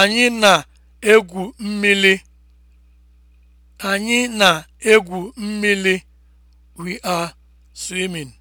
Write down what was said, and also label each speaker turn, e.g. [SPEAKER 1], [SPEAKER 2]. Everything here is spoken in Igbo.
[SPEAKER 1] Anyị na-egwu mmiri. Anyị na We are swimming.